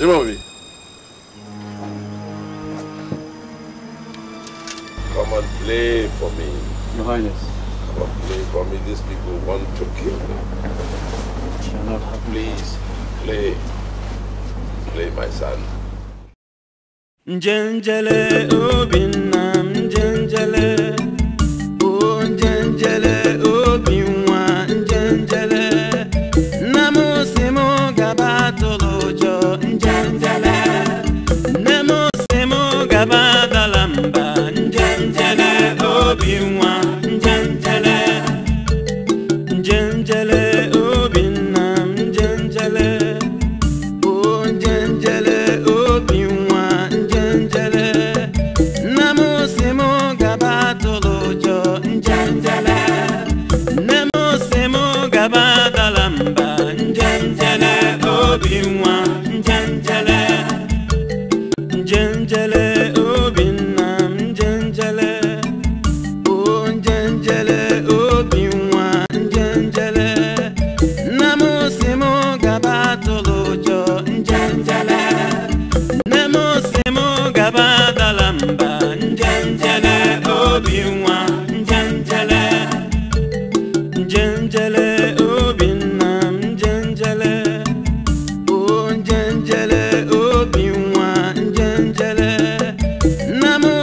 J'ai pas envie. Come and play for me. Your Highness. Come and play for me. These people want to kill me. Shall not happen. Please, play. Play, my son. Njenjele obinna, njenjele jẹnjẹlẹ obi nna m jẹnjẹlẹ o jẹnjẹlẹ obi nwa m jẹnjẹlẹ nne m si m gaba tụrụ ụjọ njẹnjẹlẹ nne m si m gaba dala mba njẹnjẹlẹ obi nwa njẹnjẹlẹ njẹnjẹlẹ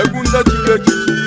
É ndị ji ya